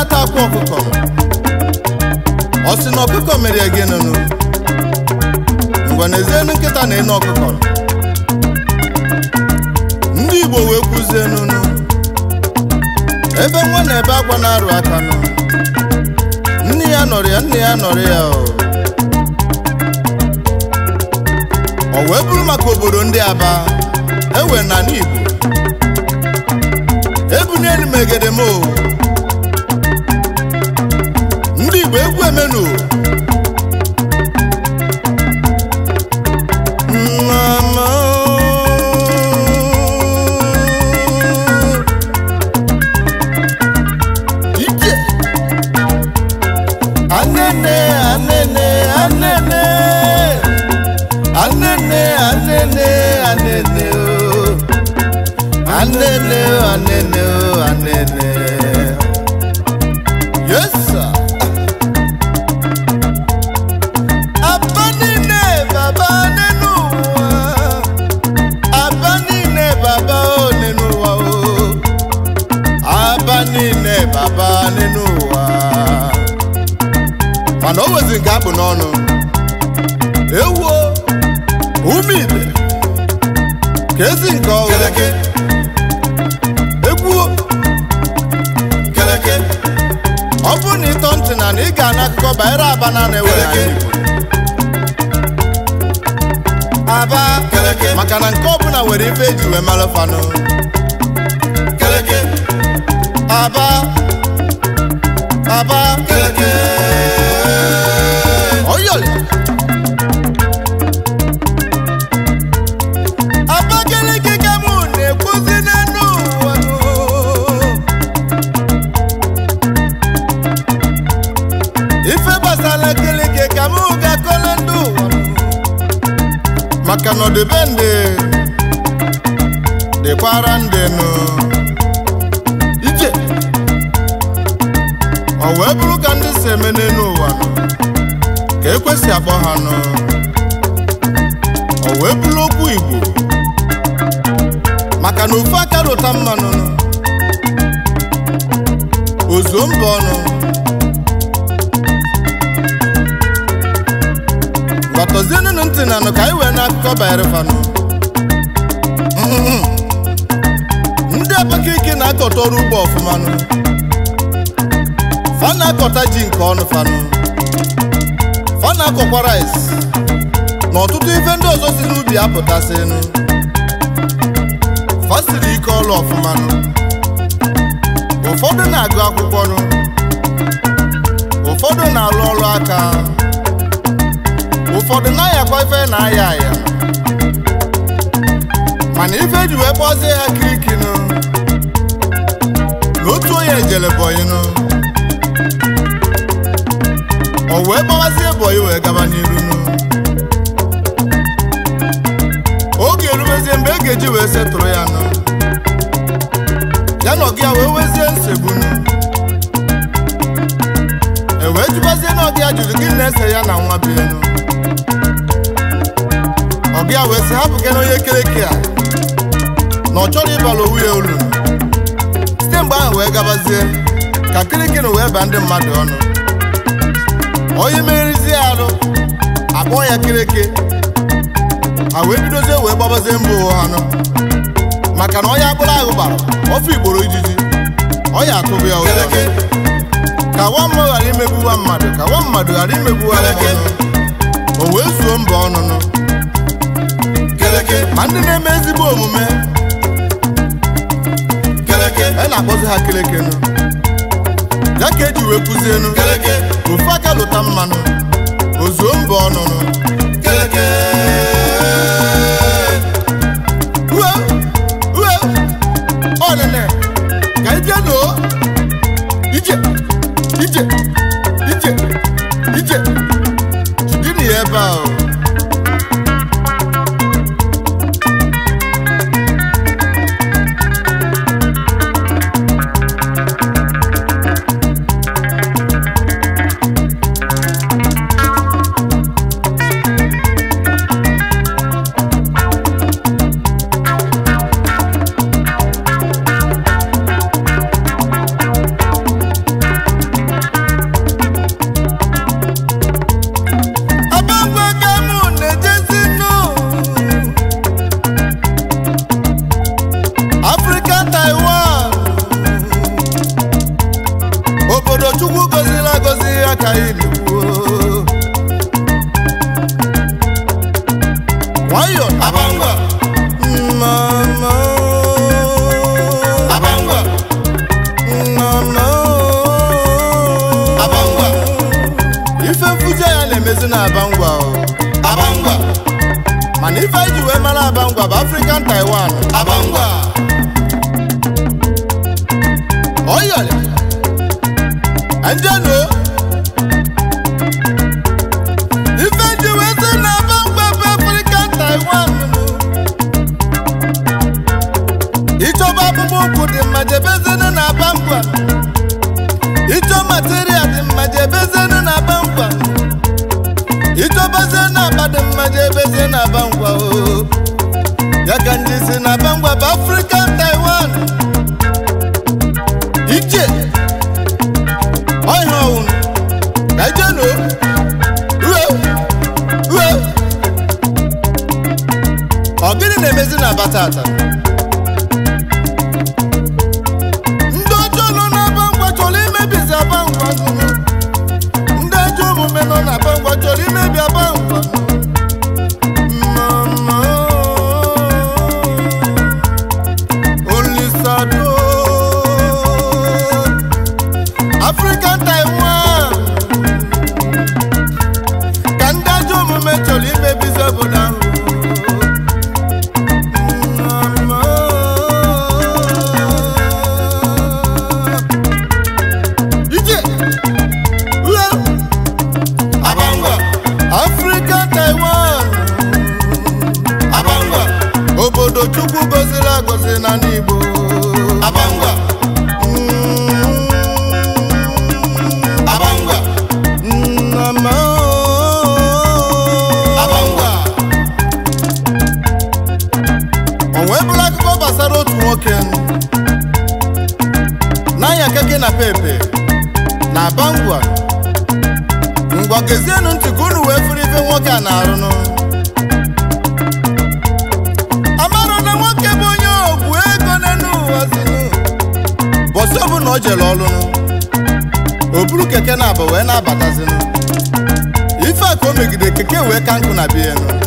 na-ata akwa ọkụkọ ọ sị na ọkụkọ mere gị nụnụ mgbe na-ezienu nkịta na ịnụ ọkụkọ ndị Igbo wee kwụzie nụnụ ebe nwa na ebe agwa na-arụ aka nụ nne ya nọrọ ya nne ya nọrọ ya ọ wee bụrụ maka obodo ndị Aba ewe na n'Igbo ebunelu m menu. aba maka na nke ọbụla nwere ife eji wee mara fanụ aba aba maka na ọdịbe ndị dịkwara ndị nọ. ije ọ wee ka ndị si eme n'elu ụwa ka ekwesị akpọ ha nọ. ọ wee okwu Igbo maka na ofu aka rụta mmanụ ozuo mba nọ. tọzienunu ntị na anụ ka anyị wee na akụkọ banyere fanụ mm-hmm. ndị ike na-akọta ọrụ ugbo ọfụmanụ fa na-akọta ji nke ọnụ fanụ fa na-akọkwa rais. na ọtụtụ ife ndị ọzọ si n'ubi apụtasịnụ fa siri ike ọrụ ọfụmanụ ụfọdụ na-agụ akwụkwọ nụ ụfọdụ na-alụ ọrụ aka ụfọdụ na-ayakwa ife na-aya aya mana ife e ji wee kpọzie ya kirikinu na otu onye ejele bọyinu o wee gbawazie bọyị wee gaba n'iru oge erubezie mgbe e ga-eji wee setụrụ ya nụ ya na ọgụ ya wee wezie nsegbu ya jụrụ gị na-ese ya na nwa ọ ọbịa wee sị hapụ gị n'onye kereke a na ọ chọrọ ịbalụ owu ya olu site mgbe ahụ wee gabazie ka na wee baa ndị mmadụ ọnụ onye merizie arụ akpọọ ya kireke a wee bidozie wee gbabazie mba ụwa ha nọ maka na onye akpụrụ ahụ gbara ofe igboro ijiji ọ ya atụbụ ya ka nwa mmụọ ghara imegbuwa mmadụ ka nwa mmadụ ghara imegbuwa gị o wee zuo mba ọnụnụ ma ndị na-eme ezigbo omume e na-akpọzi ha nụ ya ka eji wee nụ ofu aka lụta mmanụ o zuo mba ọnụnụ aka iligbuo nwayọ abangwa mama abangwa mama abangwa ife mfụzi ya na na abangwa abangwa mana ife eji mara abangwa bụ African Taiwan abangwa ọyọrị ndị no agwa can't ka ndị si Africa. be time we kan kuna bienu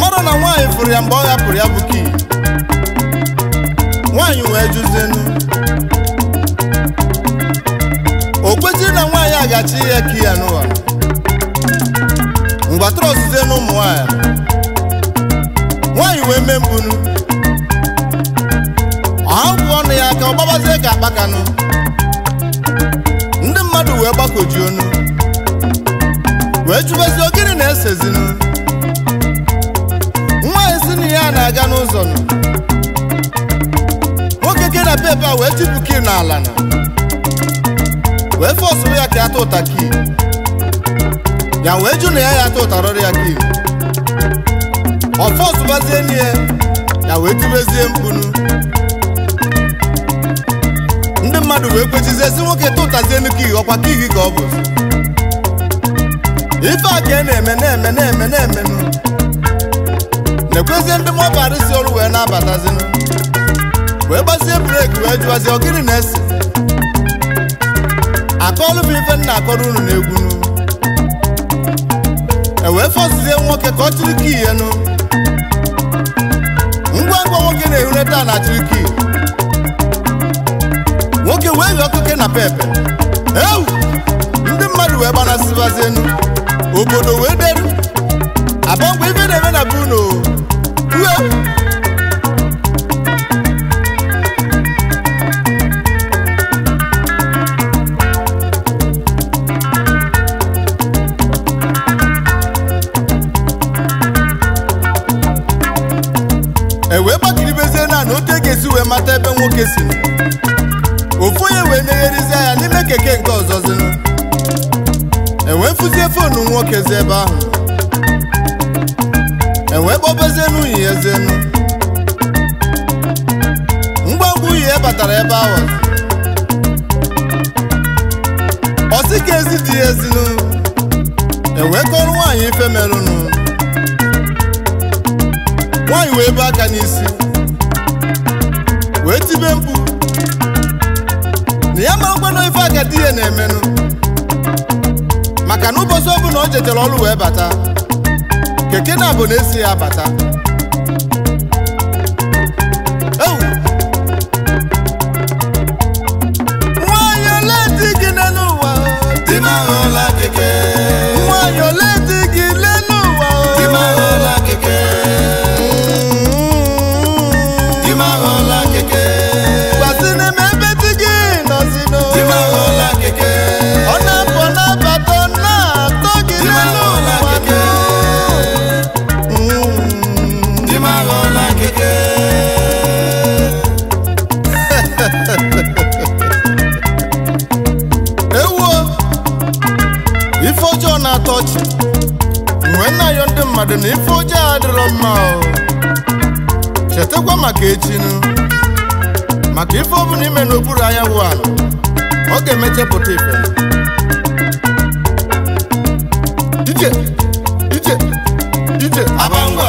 ọ na nwaanyị fụrụ ya mgbe ọ hapụrụ ya bụ kii nwaanyị wee jụzienu o na nwaanyị ga-achị ihe kii ya n'ụwa ọzụzụ ọzụzie ụmụ nwaanyị nwaanyị wee mee mbunu ahụbụ ọnụ ya ka ọ gbabazie ka akpakanụ ndị mmadụ wee gbakoji onu wee jụbezie gịnị na-esezinu a na-aga n'ụzọ nọ nwoke ke na pepe a wee tipụ ki n'ala na wee fọsụrụ ya ka ya ụta ki ya wee jụ na ya ya tụtarọrọ ya ki ọ fọsụbazie n'ihe ya wee tibezie mkpunu ndị mmadụ wee kwechizie si nwoke tụtazie nnukwu ihe ọkwa kihi ka ọ bụ ife a ka e na-eme na na-eme na ekwezie ndị mọbarịsi olu wee na-abatazi wee gbazie breki wee jụwazi ọ gịnị na-esi akọọlụ bụ ife nna akọrọ unu na-egwunu ewee fọzizie nwoke ka ọ chiri kii ngwa ngwa nwoke na-ehuneta na chiri nwoke wee yọọ keke na pepe ewu ndị mmadụ wee gbanasịbazi enu obodo wee deru abọ mgbe ife na-eme na ebe ezi was ọsị ka ezi dị ezinu ewekọrọ nwaanyị ife merụnụ nwaanyị wee bụ aka n'isi wee tibe mkpu na ya marakwana ife aka di ya na-emenụ maka na ụbọchị ọbụla o jechara ọrụ wee bata keke na abụ na esi ya bata dị m ife ọjọọ adịrọ mma chetakwa maka echinu maka ife ọbụ ime n'okpuru anyanwụ ala ọ ga-emechepụta ife ije ije abangwa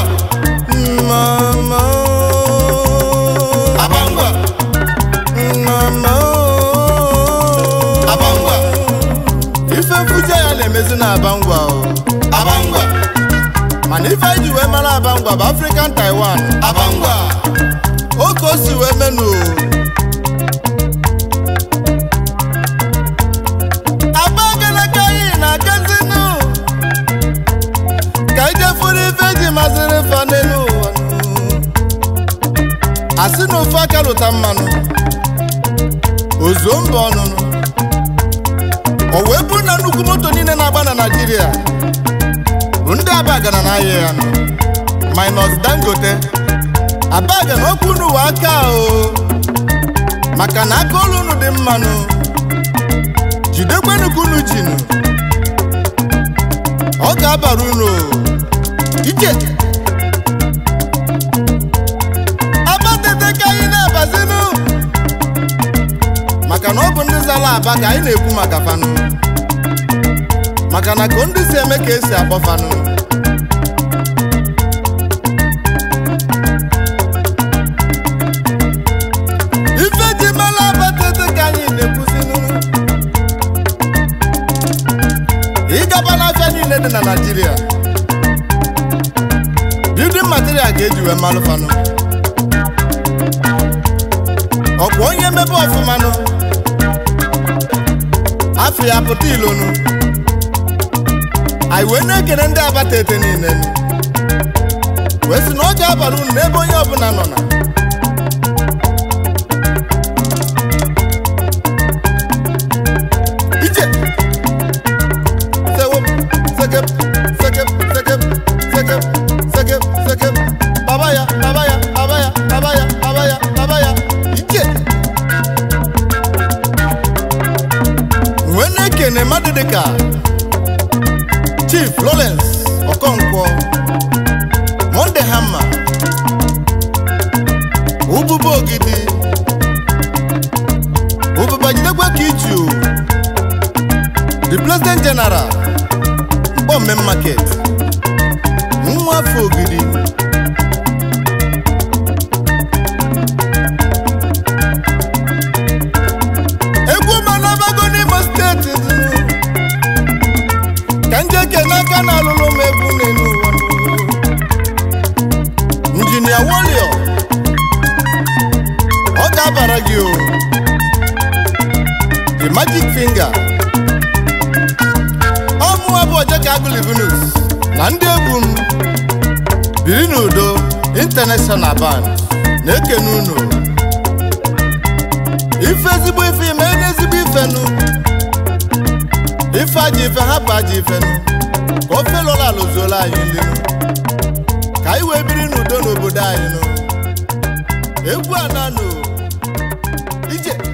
ife mfụja ya na-emezi na abangwa ife eji wee mara abangwa bụ African Taiwan abangwa otu o si wee menu na kazinu ka ijefuru ife eji maziri asị na ofe aka lụta mmanụ ozuo mba ọnụnụ o wee bụrụ na nnukwu moto niile na-agba na Naịjirịa ndị abagana na ahịa ya minus dangote abagana okwu n'ụwa aka o maka na aka olu unu dị mmanụ jidekwenukwu unu jinu ọ ga-abara unu ike ka na maka na ọ bụ ndị zara aba ka anyị na-ekwu maka fanụ maka na ka ndị si eme ka esi akpọ fanụ niile dị na naijiria building material ga-eji wee malụfanụ ọkwa onye mebe ọfụmanụ afọ ya pụta ilonu anyị wee na-ekele ndị abata ete niile wee sị na ọ ga-abara unu n'ebe onye ọbụla nọ na Chief Lawrence Okonkwo Monday Hammer ụbụba ogidi ụbụba jidekwa ka the president general Mkpọmme market nwa afọ ogidi ike n'aka na alụlụ m egwu n'elu ụwa njinia warrior ọ ga-abara gị o the magic finger ọ mụwa Ojeka na ndị egwu m biri n'udo international band na-ekene unu ife ezigbo ife ime ezigbo ife nụ ife aji ife hapụ ife nụ ofe lọla alụzuola anyị ndị ka anyị wee biri n'udo n'obodo anyị nụ egwu ananụ ije